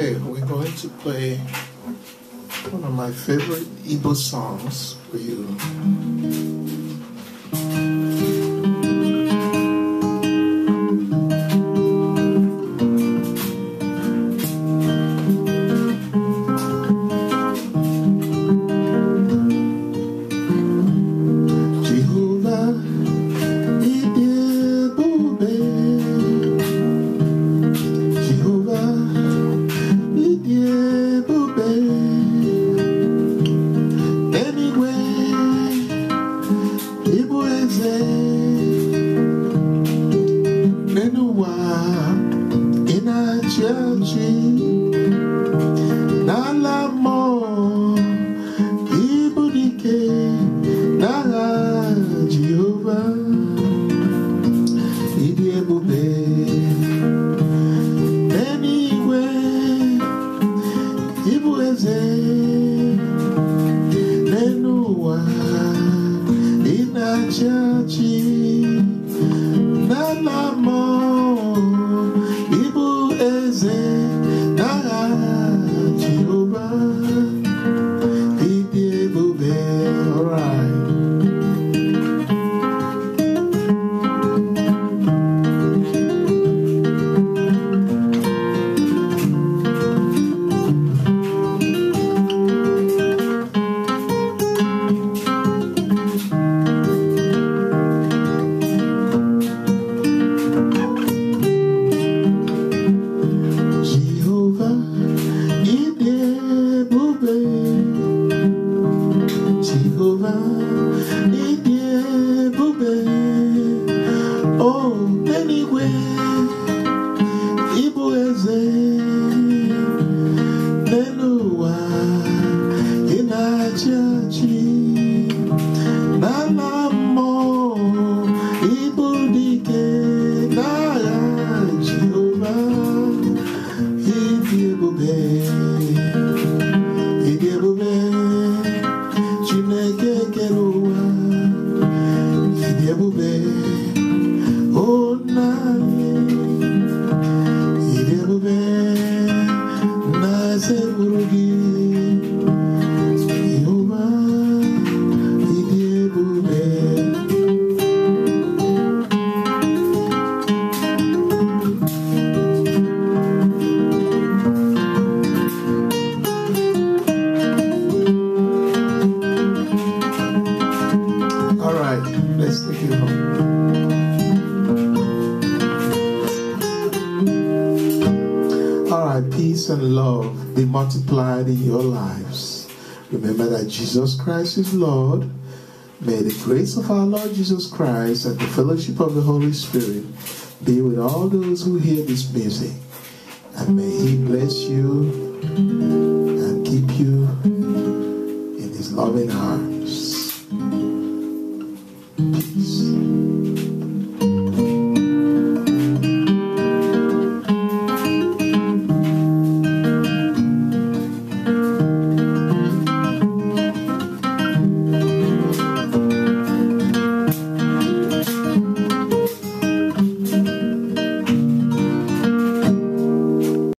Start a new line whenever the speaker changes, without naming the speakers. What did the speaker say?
Okay, we're going to play one of my favorite Igbo songs
for you.
living in a while mo ibudike na Jehovah idi ebube. Anyway, ibu church na na mo ibu eze
peace and love be multiplied in your lives. Remember that Jesus Christ is Lord. May the grace of our Lord Jesus Christ and the fellowship of the Holy Spirit be with all those who hear this music. And may He bless you and keep you in His loving arms. Peace.